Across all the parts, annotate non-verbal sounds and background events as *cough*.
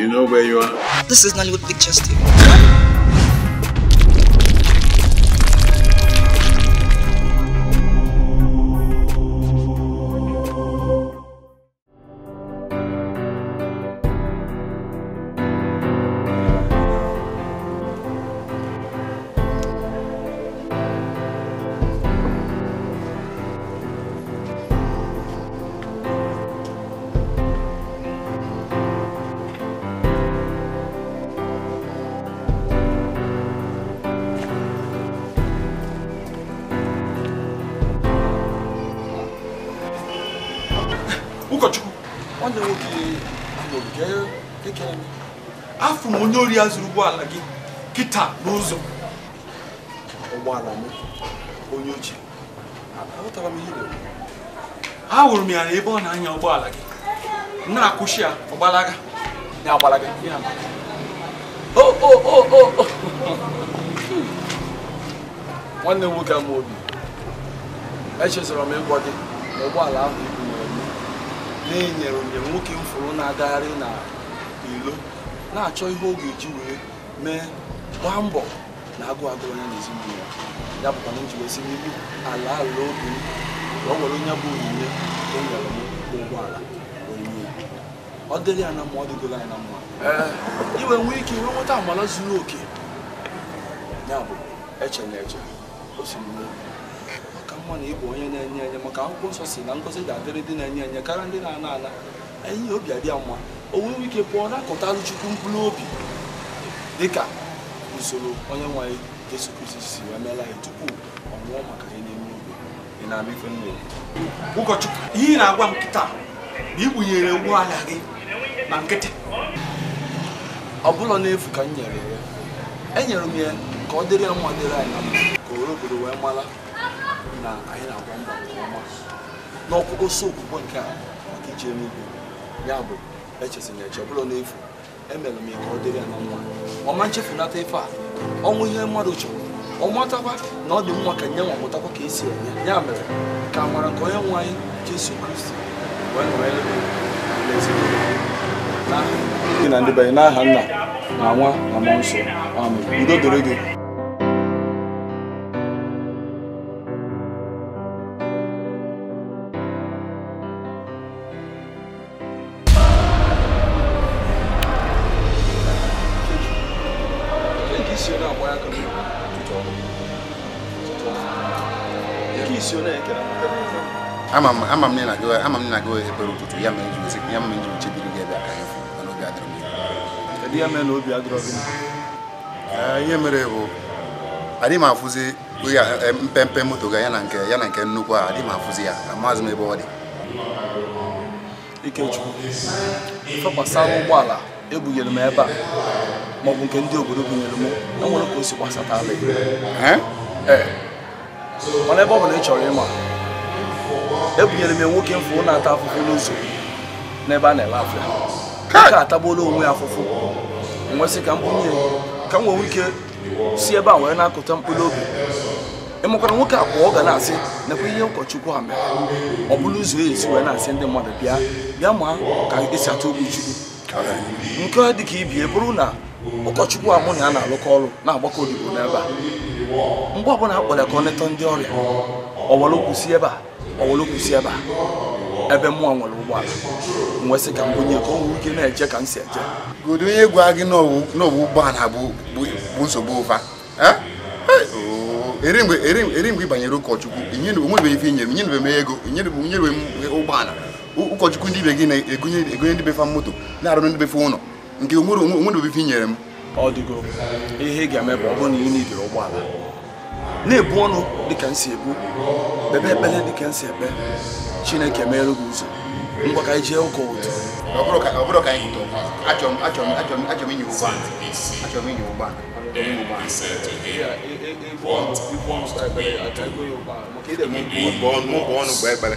You know where you are? This is Nollywood Pictures TV. onye ori ya zuru ụgbọala gị kịta n'ụzọ ụgbọala m onye ochie aghọtara m ihe ahụrụ m ya na ebe ọ na-anya ụgbọala gị na-akwụsị ya ọgbalaga ya agbalaga ya nwanne m nwoke ama obi echezọrọ m ịgwọ gị na ụgbọala ahụ ibu na-enyere njem nwoke m fụrụ na-agagharị na na-achọ ihe ọ ga-eji wee mee gbaa mbọ na agụ agụ onye n'ezinụlọ ezinụlọ ya ya bụkwa na njiwesi n'ihu ala ala obi m ka ọ were onye bụ onyinye o nyere m ụgbọala onyinye ọ dịrị ya na mma ọ dịgoro ya na mma eh. iwe nwee ike iwe nweta amala zuru oke ya bụ eche na eche osimiri maka mma na ịbụ onye na-enye enye maka akwụkwọ nsọ si na ngozi ga-adịrị dị na-enye enye karịa ndị na-ana ana enyi obi adị ya mma o nwewe ike pụọ na-akọtalụ chukwu mkpụrụ obi dịka usoro onye nwe anyị Jesu Kristi si wee meela anyị tupu ọ nwụọ maka anyị n'ime igwe ị na-ama ife mmiri ụkọchukwu ihe ị na-agwa m kịta na ikpunyere ụgbọala gị na nkịtị ọ bụla n'efu ka m nyere ya e nyere m ya ka ọ dịrị ya mma dịrị anyị ka owere obodo wee mara na anyị na-agwa mba nke ọma n'ọkpụkpọ okwukwe nke a maka ije n'igwe ya bụ echezina eche ọbụla n'efu emere m ya ọ dịrị ya na nwa ọma nchefunata ife a ọnwụ ihe mmadụ chọrọ ọ matakwa na ọ dị mma ka nye nwa ka esi enye ya mere ka amara nke onye nwe anyị Jesu Kristi gị na ndị banye n'aha nna na nwa na mmụọ nsọ udo doro gị ama m ama m na na eh, ya mere ya mere nji chebiri gị ebe ya ihe mere bụ adịghị m afụzi mpempe moto ga ya na nke ya nke nnukwu a adịghị m afụzi ya amaghịzi m ebe ọ dị Ikechukwu ụgbọala ebunyere m ebe a maọbụ nke ndị obodo bunyere m enwere ka o si mana ebe ọ bụla ị chọrọ ịma ebunyere m nwoke mfụ na-ata afụfụ n'ụzọ n'ebe a na-ele afịa ka atagbuola onwe ya afụfụ nwesị ka m bunye ka m nwee ike si ebe a wee na-akụta mkpụrụ obi ịmụkwara nwoke a kwa ọ ga na-asị nakwa ihe ụkọchukwu ha mere ọ bụla ụzọ ezi wee na-asị ndị mmadụ bịa bịa ma ka esi atụ ogbu chukwu nke ka ibie bụrụ na ụkọchukwu a mụ na ya na-alụkọ ọrụ na-agbakọ odibo n'ebe a mgbe ọbụla a kpọrọ ka ọ netọ ndị ọrịa ọwara si ebe a ebe a ebe mmụọ nwere ụgbọala wee sị ka m ka o ike na-eje ka m si eje godo onye gwa gị n'ọwụ ụgbọala bụ nsogbu ụfa eri mgbe ị banyere ụkọchukwu onwebeghị ife inyere m m ego m ụgbọala ụkọchukwu ndị ibe gị na-egonye ndị befa moto na-arụ ndị befa ụlọ nke onwerebeghị ife inyere m ọ dịgo ihe ị ga-eme bụ ọ bụrụ na ị nidiri ụgbọala na-ebu ọnụ dịka m si ebu kpebe ekpere dịka m si ekpe chineke meere gị ụzọ ngwa ka anyị jee ụka ụtụ ụgbọọnụ gba ekpere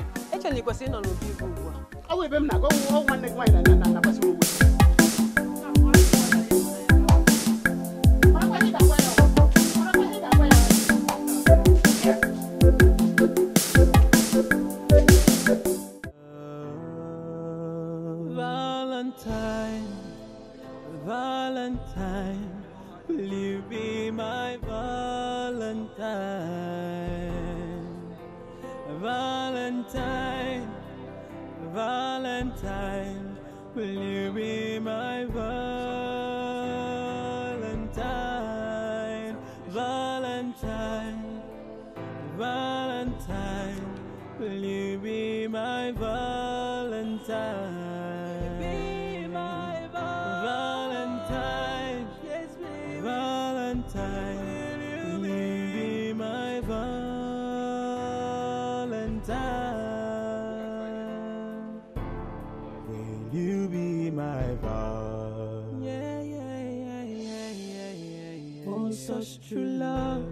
Uche na ịnọ n'obi igwe ugbu a. Ọ bụ ebe m na-aga ọgwụ nwanne gị nwaanyị na-agbasi ụgwọ true love.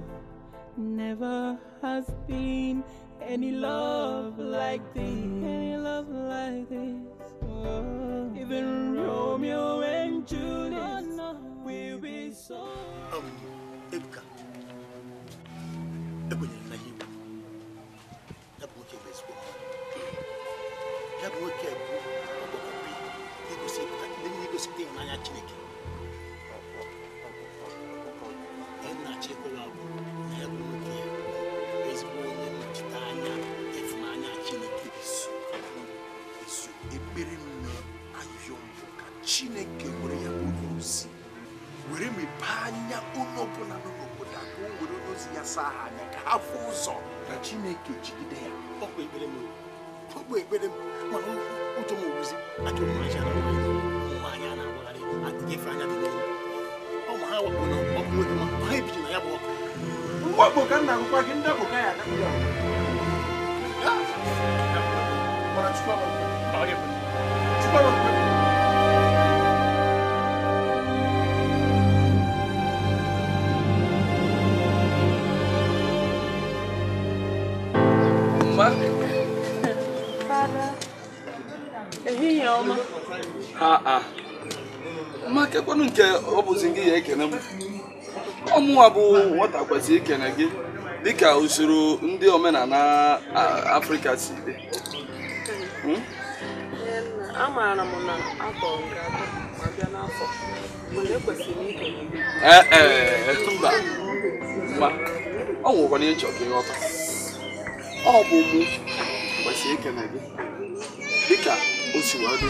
Never has been any love like this. na-asa ha anya ka ha fụ ụzọ ka chineke jigide ya ọ bụ ekpere m ọ bụ ekpere m mana ụjọ m owuzi na nwaanyị a na-agbagharị adịghị efe anya dị n'elu ọ ma ha wakpo na ọkụ nwoke ma ha ebiji na ya bụ ọkụ ka nna gị ndị ya chukwu Ah, ah. ma kekwanụ nke ọ bụzi gị ya ekene m ọmụnwa bụ nwata kwesịrị ikene gị dịka usoro ndị omenala afrịka si dị hmm? amaara m na afọ nke atọ ma bịa n'afọ mba e, e, mba ọ nwụrụkwana ịchọ ka ịghọta ọ bụ mụ kwesịrị ikene gị dịka o si dị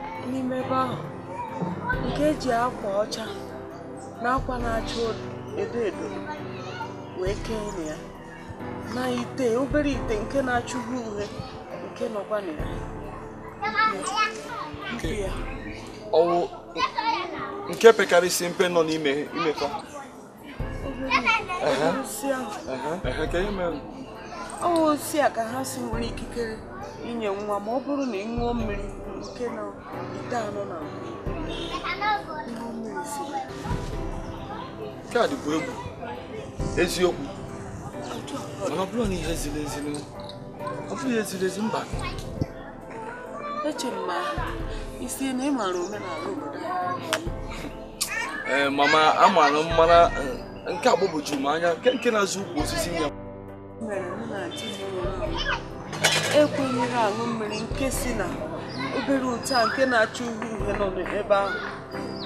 n'ime ebe ahụ nke eji akwa ọcha na akwa na-acha edo edo wee kee na ya na ite obere ite nke na-acha uwe uhie nke nọkwa na ya ọwụ nke pekarịsị mpe nọ n'ime imekọ ọ osi a ka ha si nwere ikikere inye nwa ma ọ bụrụ na ị ṅụọ mmiri nke nọ ite anọ na ihu mmiri si nke a dịkwa egwu eziokwu mana ọ bụrụ na ihe ziri ezi ọ bụghị eziri ezi mba echere m ma isi na ị maara omenala obodo anyị mama m mmara nke agbagwoju m anya nke nke na-azụ ukwu osisi ya ekwenyere e ahụ mmiri nke si na obere ute nke na achọ uhie uhie nọ n'ebe ahụ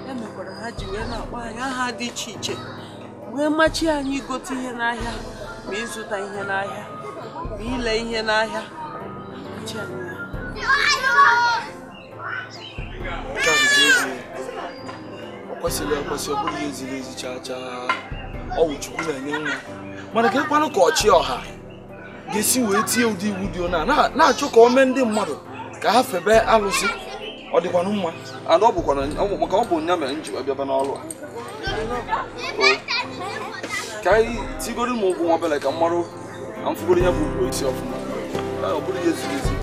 ya e mekwara ha ji wee na-akpọ anyị aha dị iche iche wee machi anyị igote ihe n'ahịa ma ịzụta ihe n'ahịa ma ile ihe n'ahịa ọ kwesịrị ekwesị ọ bụghị eziri ezi chaa chaa ọwụ chukwu na-enye nwa mana ka ekwanụ ka ọchị ọha ga-esi wee tie ụdị iwu dị ọ na na-achọ ka ọ mee ndị mmadụ ka ha febe alụsị ọ dịkwanụ mma ọ ọ bụ nya mere nji abịaba n'ọlụ a ka anyị tigoro m ụgwụ nwa obele ka m marụ na mfugoro ya bụ ugo isi ọfụma ọ bụrụ ya ziri ezi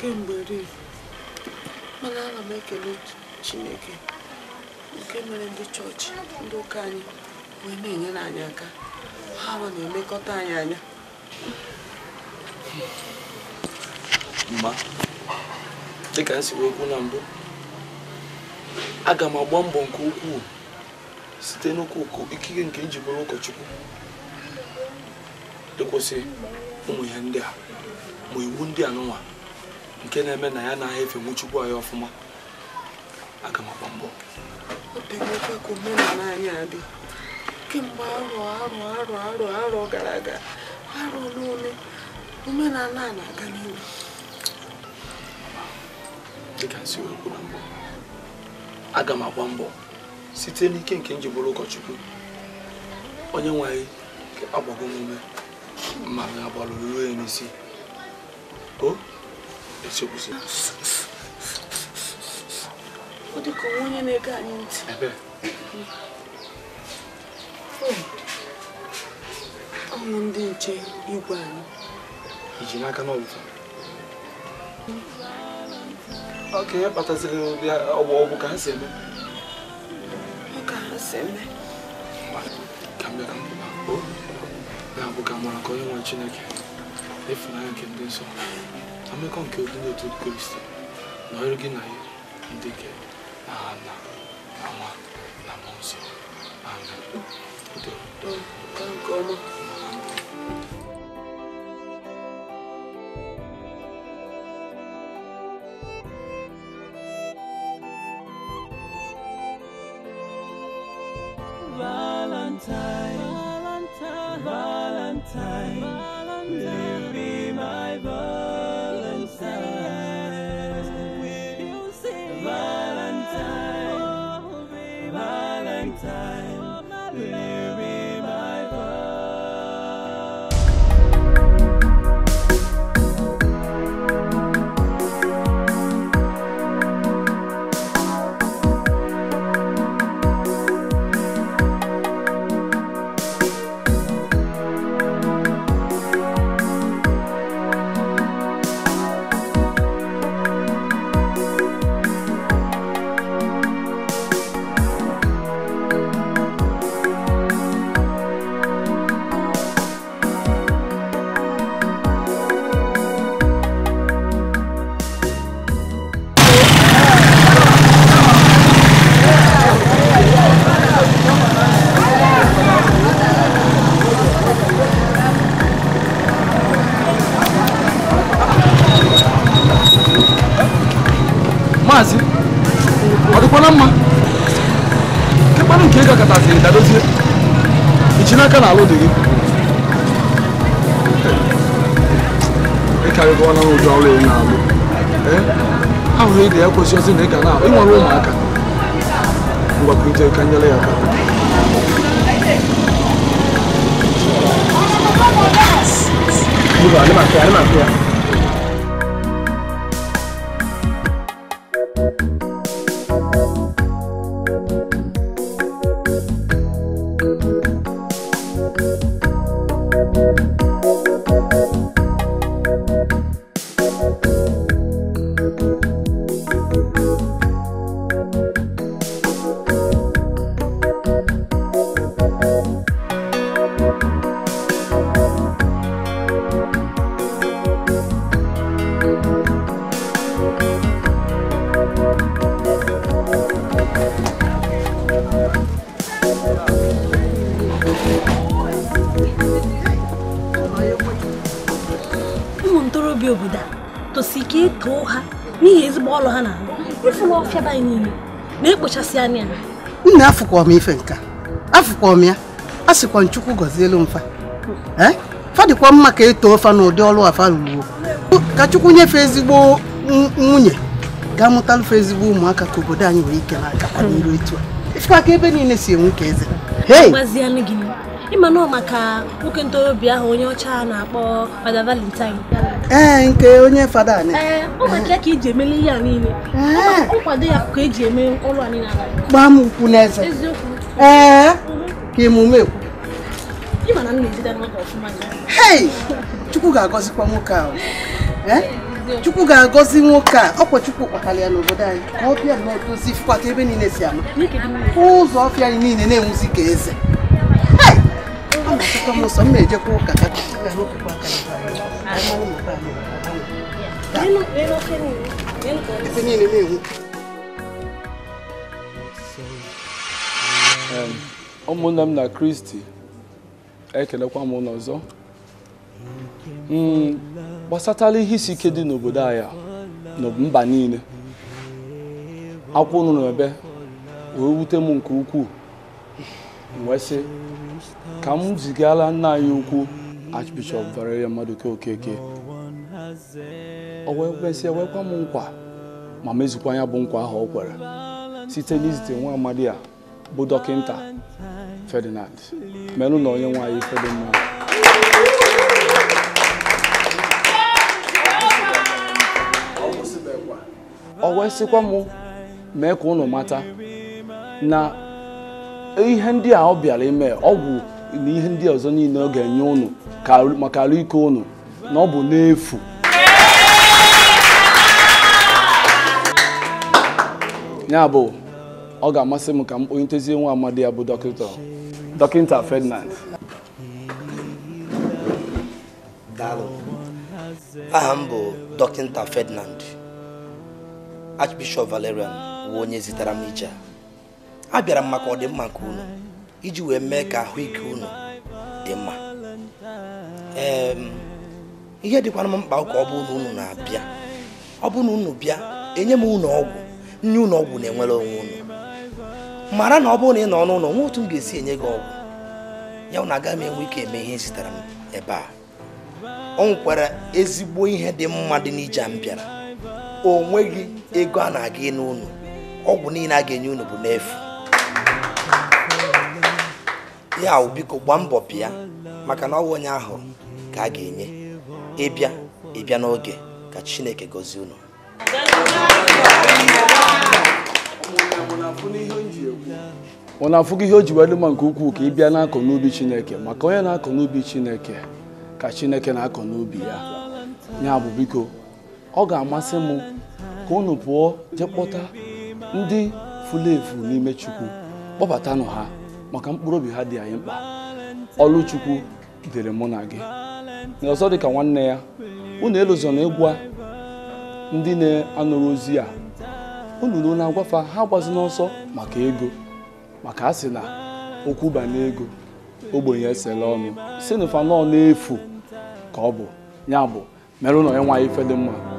ihe mana ana m ekele chineke nke mere ndị chọọchị ndị ụka anyị wee na-enyere anyị aka ha nọ na emekọta anyị anya mma dịka m si wee na mbụ aga m agba mbọ nke ukwuu site n'ụkwụ ikike nke njikọrọ ụkọchukwu ịkwụsị ụmụ ya ndị a ma iwu ndị a nke na-eme na ya na-ahịa efe nwuchukwu anyị ọfụma aga m agba mbọ ka omenala anyị adị kemgbe arọ arọ arọ arọ arọ gara aga arọ n'ole omenala a na-aga n'ihu aga m agba mbọ site n'ike nke njibụrụ ụkọchukwu onye nwanyị anyị agbago m ume ma agbalụ ruo n'isi o echekwuzi ọ dị ka onwe onye na-ege anyị ntị ahụrụ ndị nche igwe anyị iji n'aka n'ọbụfa ọka ihe kpataziri ọbụ ka ha si eme ka ha si eme ka m bịara na-abụ ka mara ka onye nwe chineke ịfụnanya nke ndị nsọ 담배관 교둔에 듣고 있어. 너에게 나의 힘들게 나나 나와 나 나나 또또 다른 거만 Valentine, Valentine, Valentine, Valentine. katasịrị dadozie ichi n'aka na alụ dị gị ịkarịgo na ụjọ ọrụ ị na-alụ ahụhụ ị ga-ekwesị ozi na ị ga na ịnwere ụmụaka ngwakwute ka nyere ya aka Hold on, I'm not clear, I'm not clear. na-apịa be anyị niile na-ekpochasị anya nna afụkwa m ife nka afụkwa m ya a sịkwa nchukwu gọzielu mfa eh? fadịkwa mma ka eto ofa na ụdị ọrụ afa ruru ka chukwu nyefee ezigbo nwunye ga fe ezigbo ụmụaka ka obodo anyị wee ike na-agakwa n'iru etu a ka ebe niile si enwe ka eze ịma nọ maka nwoke ntorobịa ahụ onye ọcha na-akpọ Valentine ee eh, nke onye fada anyị eh, ka a niile eh. ya ka e eme ụlọ niile. ukwu n'eze ee mhm. ka emume ekwu chukwu ga-agọzikwa nwoke ahụ chukwu ga-agọzi nwoke a ọkwa chukwu ya n'obodo anyị ka ọ na odozi ebe niile si ama ụzọ ọfịa anyị niile na-enwuzi ka eze ụmụnne m na kristi ekelekwa m ụlọ ọzọ hmm, gbasatala ihe isi ike dị n'obodo anyị na mba niile akwụ ụnụ ebe wee wute m nke ukwuu wee sị ka m zigala nna anyị ukwu Archbishop Valerian Maduka Okeke o wee kwesị ewekwa m nkwa ma mezukwa ya bụ nkwa ahụ o kwere site n'izite nwa amadi a bụ dọkịta Ferdinand merụ na onye nwaanyị Ferdinand o wee m mee ka ụnụ mata na ihe ndị a ọ bịara ime ọgwụ na ihe ndị ọzọ niile ọ ga-enye ụnụ maka ala ike ụnụ na ọ bụ n'efu ya bụ ọ ga-amasị m ka m kponye ntezie nwa amadi ya bụ dọkịta dọkịta Ferdinand aha m bụ dọkịta Ferdinand Archbishop Valerian bụ onye zitere m ije abịara m maka ọdịmma nke unu iji wee mee ka ahụike unu dị mma ihe dịkwana m mkpa ka ọ bụ unu unu na-abịa ọ bụ na unu bịa enye m unu ọgwụ nye unu ọgwụ na-enwere onwe unu mara na ọ bụrụ na ị nọ n'ụlọ nwe otu m ga-esi enye gị ọgwụ ya na agaghị m enwe ike eme ihe zitere m ebe a ọ nwekwara ezigbo ihe dị mma dị n'ije m bịara o nweghị ego a na-aga n'ụlọ ọgwụ niile a ga-enye unu bụ n'efu ya biko gbaa mbọ bịa maka na ọwụ onye ahụ ka a ga-enye ịbịa ịbịa n'oge ka chineke gozie unu ọ na-afụgo ihe o ji wedụ nke ukwuu ka ị bịa na n'ubi chineke maka onye na-akọ n'ubi chineke ka chineke na-akọ n'ubi ya ya bụ biko ọ ga-amasị m ka unu pụọ jee ndị furu efu n'ime chukwu kpọbatanụ ha maka mkpụrụ obi ha dị anyị mkpa ọlụchukwu dịrị mụ na gị na dị ka nwanne ya unu na ịgwa ndị na-anụrụ ozi a unu na na-agwafa ha gbazi n'ọsọ maka ego maka a sị na okwu banye ego ogbenye esela ọnụ si na fanọ na-efu ka ọ bụ ya bụ mere na ya nwaanyị fedị mma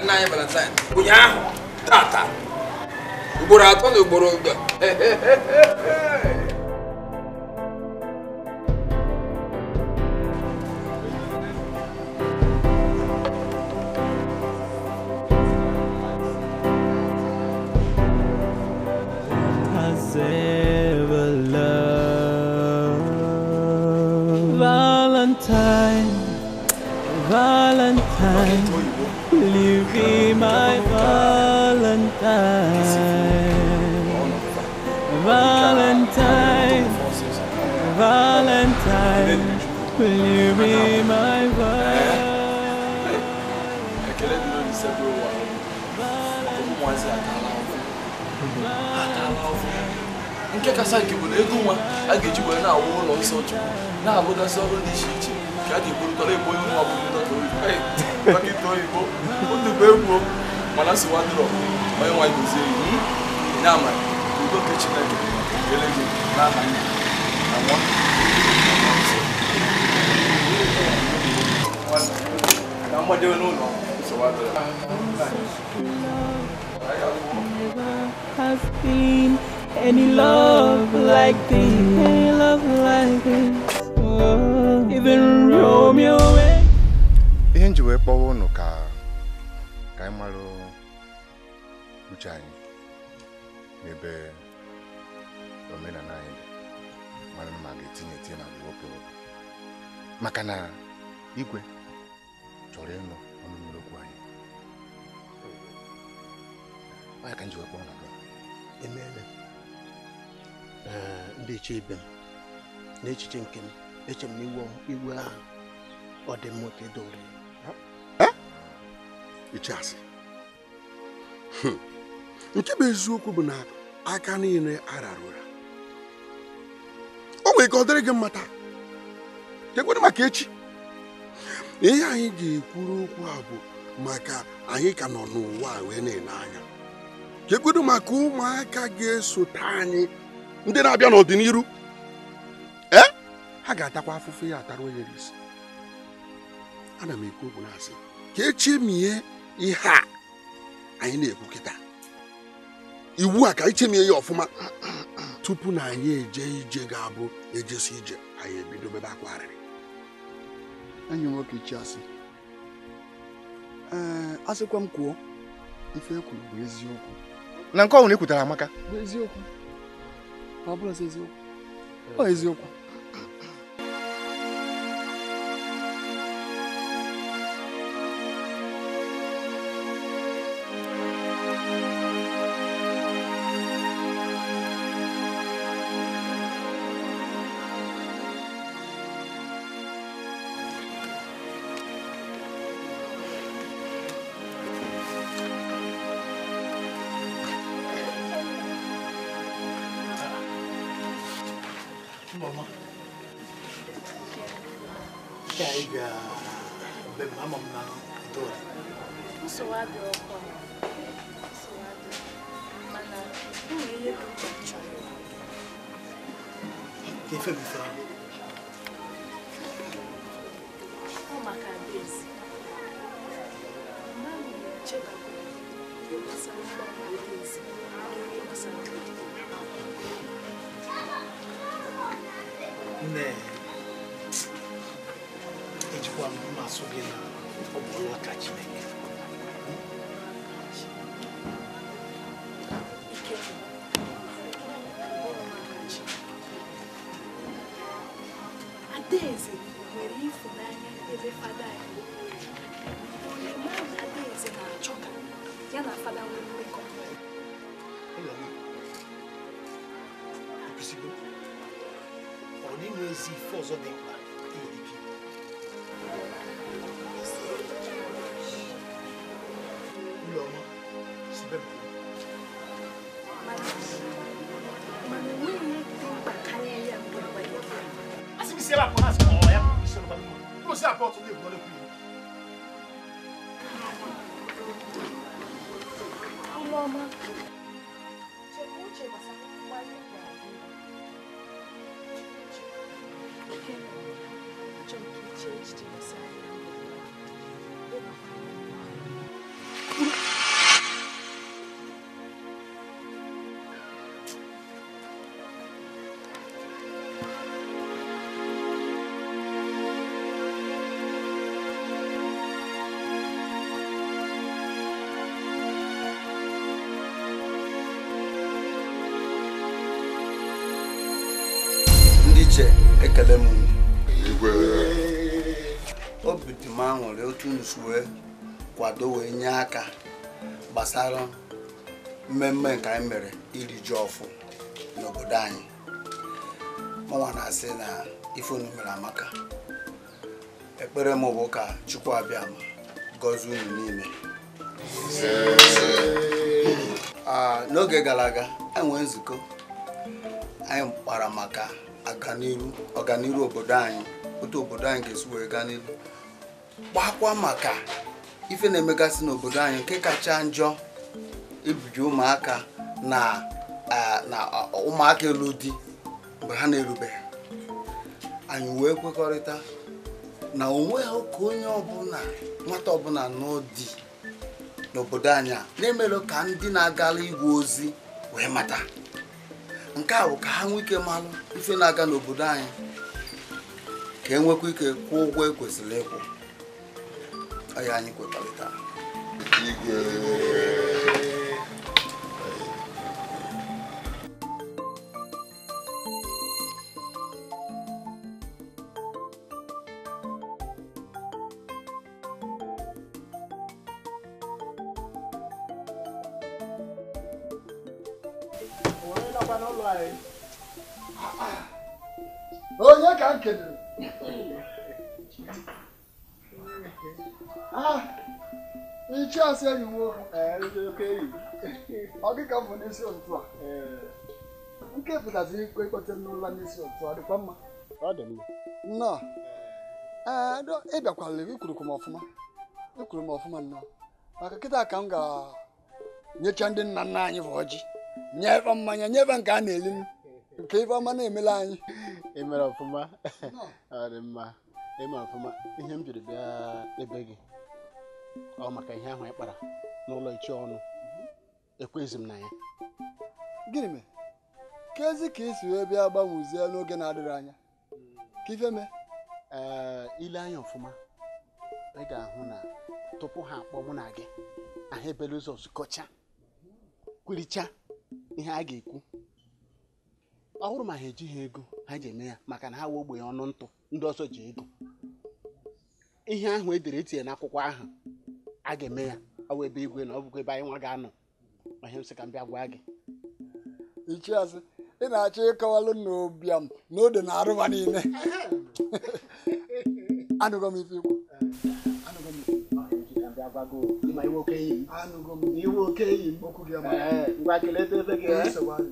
nna anyị valentine ụnyaahụ tata ugboro atọ na ugboro nke kasa nke bụ na ego nwa a ga-eji wee na-awụ ụlọ nsọ chukwu na-alụgasị ọrụ dị iche iche ka a ga-egburụtara ebo onye nwa bụrụ dọkịta oyibo otubo egwu mana si wadrọ onye nwa gozie iwu ya udo nke chineke ele gị n'aha nne na nwa na mgbadebe n'ụlọ Has been any love like this, any love like this. Oh, even Romeo. ihe nji wee kpọwa ụnụ ka ka anyị marụ uche anyị n'ebe omenala anyị dị mara ma ga-etinye etinye ma wepụ maka na igwe chọrọ ịnụ ọnụ mmiri okwu anyị onye ka nji wee kpọọ na emeela ndị ibe m n'echiche nke m eche m na igwe ahụ ọ dị mma ka edowere icheasị hmm. nke bụ eziokwu bụ na aka niile arara ụra o nwere ka ọ dịrị gị mmata taa kekwere maka echi ihe anyị ga-ekwuru okwu a bụ maka anyị ka nọ n'ụwa wee na-ele anya kekwere maka ụmụaka ga-esote anyị ndị na-abịa n'ọdịnihu ee ha ga-atakwa afụfụ ya atara onye isi ana m ekwu okwu na-asị ka echemie ihe a anyị na-ekwu kịta iwu a ka anyị e chemie ya ọfụma tupu na anyị eje ije ga-abụ ejesi ije anyị ebido bebe akwarịrị enyi nwoke chiasị ee asịkwa m kwuo ife ekwuru bụ eziokwu na nke ọhụrụ ekwutara amaka bụ eziokwu Pablo Ezio. Ô, Ezio. ejikwa mmasụ gị na ọ bụ ọlụ aka Chineke adaeze nwere ịfụnanya ebe fada ya onye mmadụ adaeze na-achọ ka ya na fada que mmekọ ọ dịghị ezi ife ọzọ dị mkpa 거를 uche ekele m obi dị m otu nsu wee kwado wee nye aka gbasara mmemme nke anyị mere iri ji ọfụ n'obodo anyị mụnwa na-asị na ifeunu mere amaka ekpere m bụ ka chukwu abịa ma unu niile ah, n'oge gara aga enwe nzukọ anyị kpara maka ọganiru obodo anyị otu obodo anyị ga-esi wee gaa n'ihu gbakwa maka ife na-emegasị n'obodo anyị nke kacha njọ ibiji ụmụaka na ụmụaka elu di mgbe ha na-erubeghị anyị wee kwekọrịta na onwe ha ka onye ọbụla nwata ọbụla n'ụdị n'obodo anyị a na-emelụ ka ndị na-agala igwe ozi wee mata nke a bụ ka ha nwee ike malụ ife na-aga n'obodo anyị ka enwekwa ike kwụọ ụgwọ ekwesịrị ịkwụ ọya anyị kwetarịta onye ka m kedoro ichiasị enyi nwoke ọ ka m bụ n'isi ụtụtụ a nke pụtazi ikwe kpọtere n'ụlọ n'isi otu a dịkwa mma ọ dị m ọfụma ikwuru m ọfụma nnọọ maka kịta ka m ga-enyecha ndị nna nna anyị bụ ọjị nyebe mmanya nyebe nke a na-eli nke ife ọma na-emela anyị *laughs* emere ọfụma *laughs* ọ dị mma eme ọfụma ihe m jiri bịa ebe gị ọ maka ihe ahụ ị kpara n'ụlọ ichi ọnụ ekwezi m na ya gịnị mere ka ezi ka isi wee bịa gbanwezie n'oge na-adịghị anya ka ife mee ile anya ọfụma ị ga-ahụ na tupu ha akpọ mụ na gị ahụ ebele ụzọ zukọcha kwiricha ihe a ga-ekwu ọ hụrụ ma ha ejighị ego ha ji eme ya maka na ha wee ogbe ọnụ ntụ ndị ọzọ ji ego ihe ahụ e dere etinye n'akwụkwọ ahụ a ga-eme ya ọ igwe na ọ bụkwa ebe anyị nwa ga-anọ ihe m ka m bịa gwa gị ichiazị ị na-achọ ịkọwalụ n'obiam n'ode na arụba niile *laughs* m ife ikwu agbago ma iwo keyi. anugo mi iwo keyi. okugi ama. ngwa kele te fege. kele sọgbọn.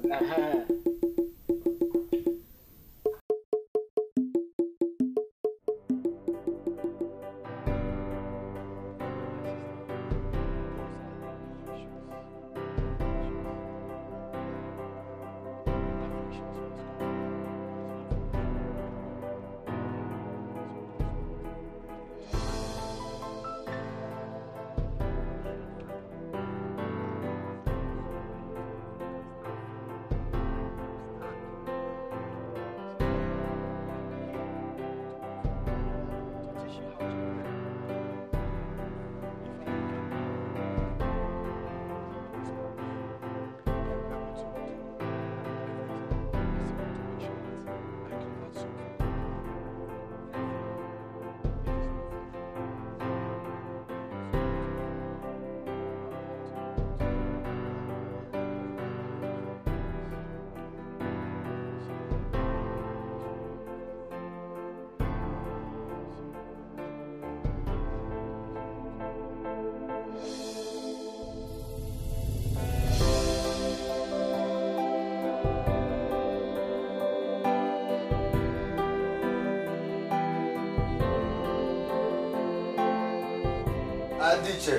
dị iche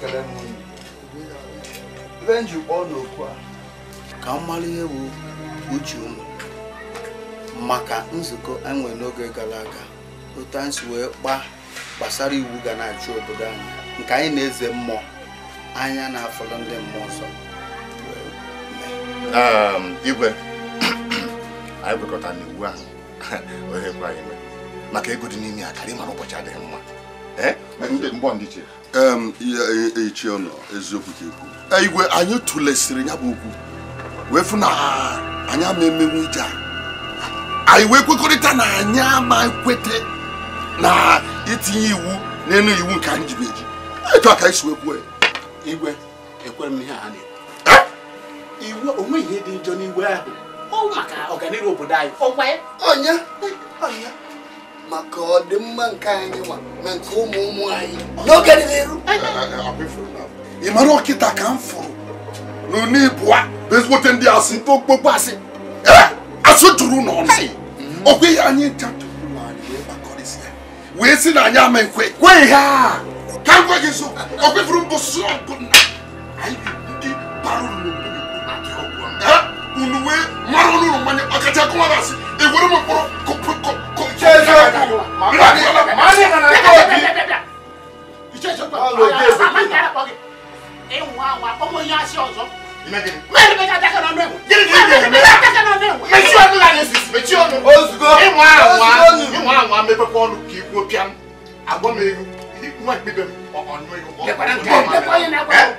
kere m ndị m ji kpọọ n'okwu a ka m mara ihe bụ uche ụmụ maka nzukọ enwe n'oge gara aga otu anyị si wee kpaa gbasara iwu ga na-achị obodo anyị nke anyị na-eze mmụọ anya na afọ ndị mmụọ nsọ ehm, igwe *coughs* anyị kwekọtara n'iwu ahụ *laughs* ohe kwa anyị maka ego dị n'ime ya karị mara ụbọchị adịghị mma echi eh? e, e, ọnọ eziokwu ka ekwu eh, igwe anyị tụlesịrị ya bụ okwu wee fụ na anyị ama emenwu ije a anyị wee kwekọrịta na anyị ama kwete na itinye iwu n'elu iwu nke anyị ji eji etu aka ka wee kwuo igwe ekwere m ihe a na iwu eh? onweghị ihe dị njọ n'igwe ahụ ọ maka ọganihu obodo anyị ọkwa ya onye onye maka ọ dị mma nke anyị nwa na nke ụmụ ụmụ anyị n'oge dị n'iru ị mara ọkịta ka m fụrụ n'ụlọ ibụa bezigbote ndị asị okpokpo asị asụ juru n'ọnụ ọkwa ihe anyị jatụrụ anyị wee kpakọrịsị ya wee si na anyị ama nkwe kwe ihe a ka m gwa gị so ọ kwefuru mbụ sụọ bụ na ndị bara nnukwu unuwe mara onu no mane akaja ko wala si e wori mo poro ko ko ko chezo ko mani mani na na ko bi chezo ko lo de se e wa wa ko mo yan si ozo imagine mari be ta ta na nwe giri giri me ta ta na nwe me chi onu la yesis me chi onu ozugo e wa wa e wa wa me pe ko onu ki ko pian agbo me ru ni nwa gbe be onu e ko ko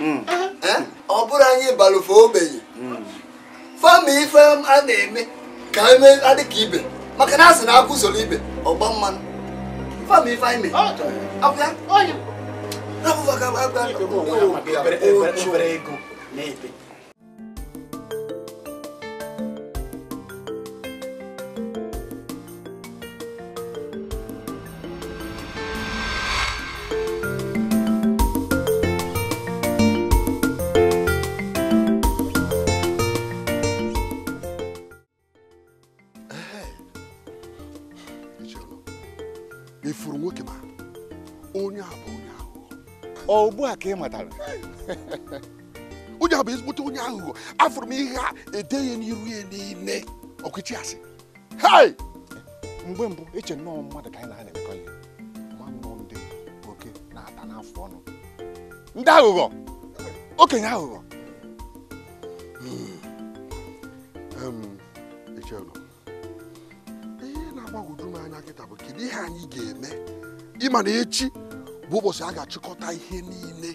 Eh? ọ bụrụ anyị balụfe ogbenye fama ife a na-eme ka eme adịka ibe maka na a na akụ usoro ibe ọgba mmanụ fama ife anyị mee ugbu a ka ị matara onye a bụ ezigbote onye aghụghọ afụrụ m ihe a edeghị n'iru ya niile ọkụchi asị hai mgbe mbụ eche nnọọ mmadụ ka anyị na-ana emekọ ihe mmanụ ndị oke na-ata n'afọ ọnụ ndị aghụghọ okenye aghụghọ hmm. echenụ ihe na-agbagwoju m anya nkịta bụ kedu ihe anyị ga-eme ịma na echi bụ ụbọchị a ga-achịkọta ihe niile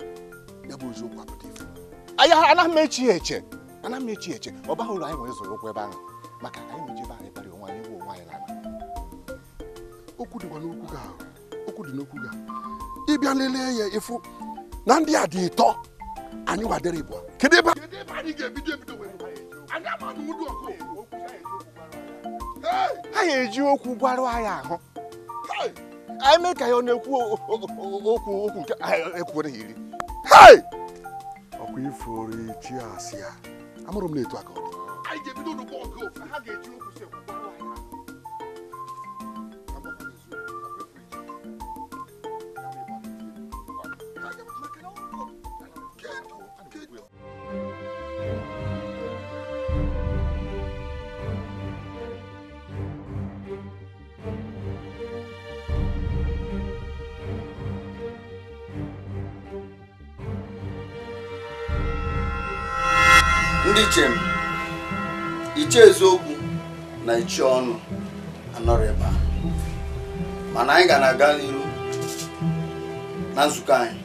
ya bụ eziokwu apụta ifo. anya anaghị m echi eche anaghị m echi eche ọ baghị ụlọ anyị nwere zụrụ okwu ebe ahụ maka anyị meji ebe anyị kparị onwe anyị bụ onwe anyị n'ala okwu dịkwa n'okwu gị okwu dị n'okwu gị ịbịa lelee ya ịfụ na ndị a dị ịtọ anyị wadere ịbụa kedu ebe anyị ga-ebido ebido anyị ha eji okwu gbarụ anyị ahụ eme ka ya ọ na-ekwu okwu okwu nke ekwuo na iri hei ọkwa ifuru chi asị ya amụrụ m na etu aka ọ dị mechie ọnụ anọrọ ebe a mana anyị ga na-aga n'iru na nzukọ anyị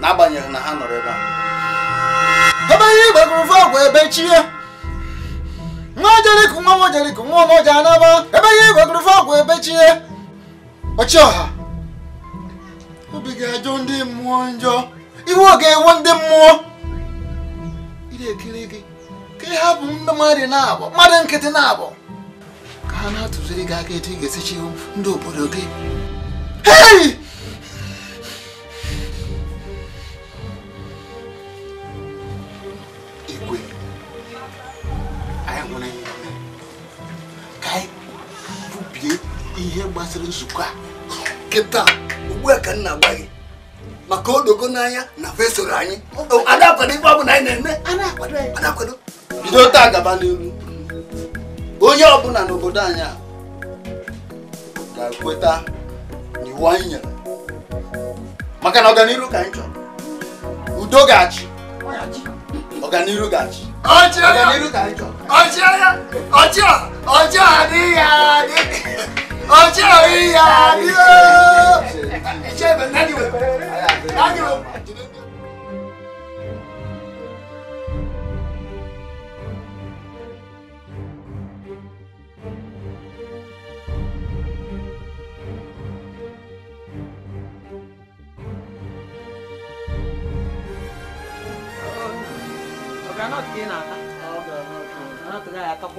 n'agbanyeghị na ha nọrọ ebe a ebe ihe igbagurufe ọgwụ ebe chie nwa ojeliko nwa nwojeliko nwa ọnọje anaba ebe ihe igbagurufe ọgwụ ebe chie ọchịọha obi ga-ajọ ndị mmụọ njọ iwe ọ ga-ewe ndị mmụọ ire ekele gị ka ị hapụ mmadụ na-abụ mmadụ nkịtị na-abụ ka ha na-atụziri gị aka etu ị ga-esichi ndị obodo gị igwe anyị nwere ka anyị bubie ihe gbasara nzukọ a kịta ugbu a ka m na-agba gị maka odogo n'anya na fesoro anyị ada akwado ife ọ bụla anyị na-eme a na-akwado bido taa gaba n'ihu onye ọbụla n'obodo anyị a ga-ekweta n'iwu anyị nyere maka na ọganihu ka anyị chọrọ udo ga-achị ọganihu ga-achị ọganihu ka anyị chọrọ ọchịa adịghị adị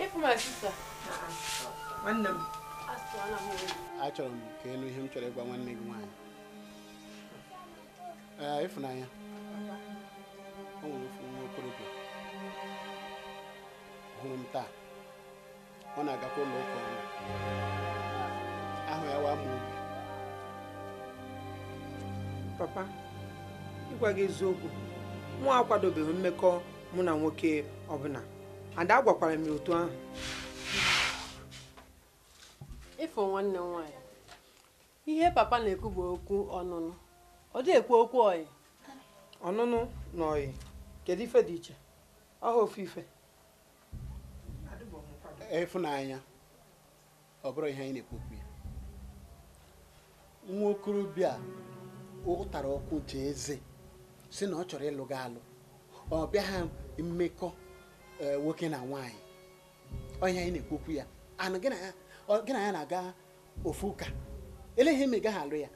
nwanne m achọrọ m ka elu ihe m chọrọ ịgwa nwanne gị nwaanyị ee ịfụnanya o nwere ofu nwa okorobịa hụrụ m taa ọ na-agakwa ụlọ ụka ọrụ ahụ ya waa m obi papa ịgwa gị eziokwu nwa akwadobeghị mmekọ mụ na nwoke ọbụla ada gwakwara m ya otu ahụ ifo nwanne m nwaanyị ihe papa na-ekwu bụ okwu ọnụnụ ọ dị ekwu okwu ọyị ọnụnụ na ọyị kedu ife dị iche ọha ofu ife ịfụnanya ọ bụrụ ihe anyị na-ekwu okwu ya nwa okorobịa ụtara ọkụ jee eze si na ọ chọrọ ịlụ gị alụ ọ bịaghị mmekọ Eh, nwoke na nwanyị onye anyị na-ekwokwu ya anụ gị na ya na-aga ofu ụka eleghị eme alụ ya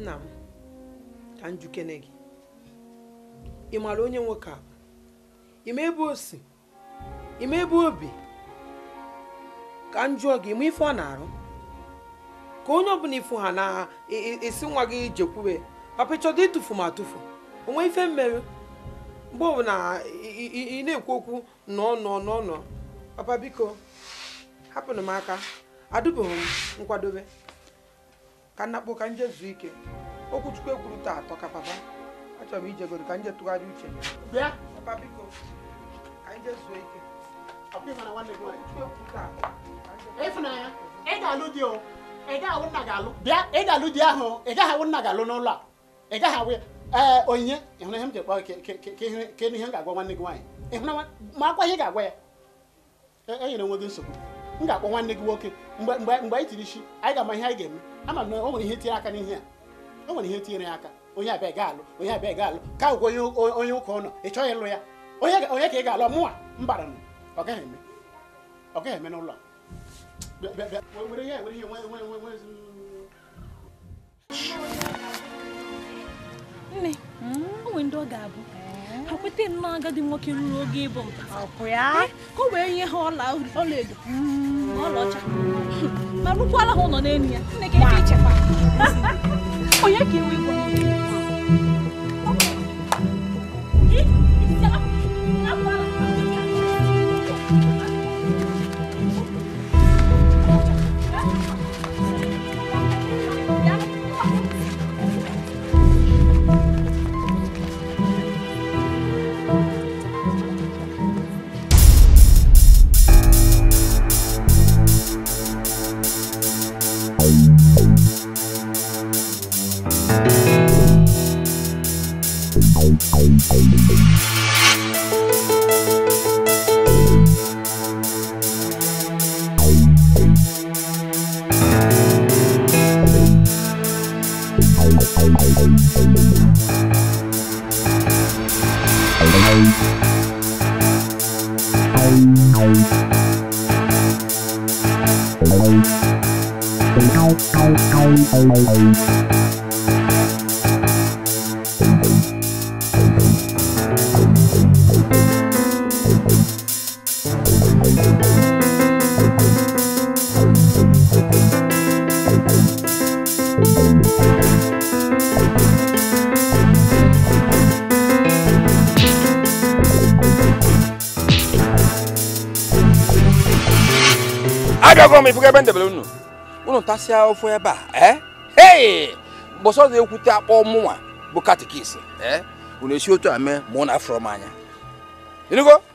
nna m ka njukene gị ị maara onye nwoke a ime ebe osi ime ebe obi ka m jụọ gị ma ife ọ na-arụ ka onye ọbụla ifu ha na esi nwa gị jekwube papa chọdọ ịtụfu ma atụfu onwe ife mmerụ mgbe ọbụla ị na-ekwu okwu n'ọnọ n'ọnọ papa biko hapụnụ m aka adụbeghị m nkwadobe ka nnakpo ka nje zuo ike okwuchukwu ekwuru taa atọ ka papa achọrọ m ijegoro ka nje tụgharị uche bịa papa biko ka nje zuo ike ịfụnanya ị ga-alụ di o ị gaghị nna ga-alụ bịa ị ga-alụ di ahụ ị gaghị awụ nna ga-alụ n'ụlọ a ị gaghị awụ ya ee onyinye ịhụna ihe m ji kpọ ka enu ihe m ga-agwa nwanne gị nwaanyị ịhụna ma akwa ihe ga-agwa ya enyere onwe gị nsogbu m ga-akpọ nwanne gị nwoke mgbe anyị tiri isi anyị ga-ama ihe anyị ga-eme ama m na o nwere ihe tinyere aka n'ihe a o nwere ihe tinyere ya aka onye abịa ga-alụ onye abịa ga-alụ ka ụgwọ onye ụka ụlọ ị chọghị ịlụ ya onye ka ị ga-alụ mụnwa mbara m ọ gaghị eme ọ gaghị eme n'ụlọ a nne hmm? o nwere ndị ọ ga-abụ ha kweta nnọọ agadi nwoke ruru oge ịbụ eh, ka o wee nye ha ọla edo na hmm. ọlaọcha ma rụkwala ha ụlọ n'elu ya nne ka ebe ichekwa onye ka iwe gwa bende belunu unu tasia ofu ebe a eh hey boso ze ekwute akpọ mụnwa bụ katikis eh unu esi otu a mee ma na-afụrọ m anya ịnụgo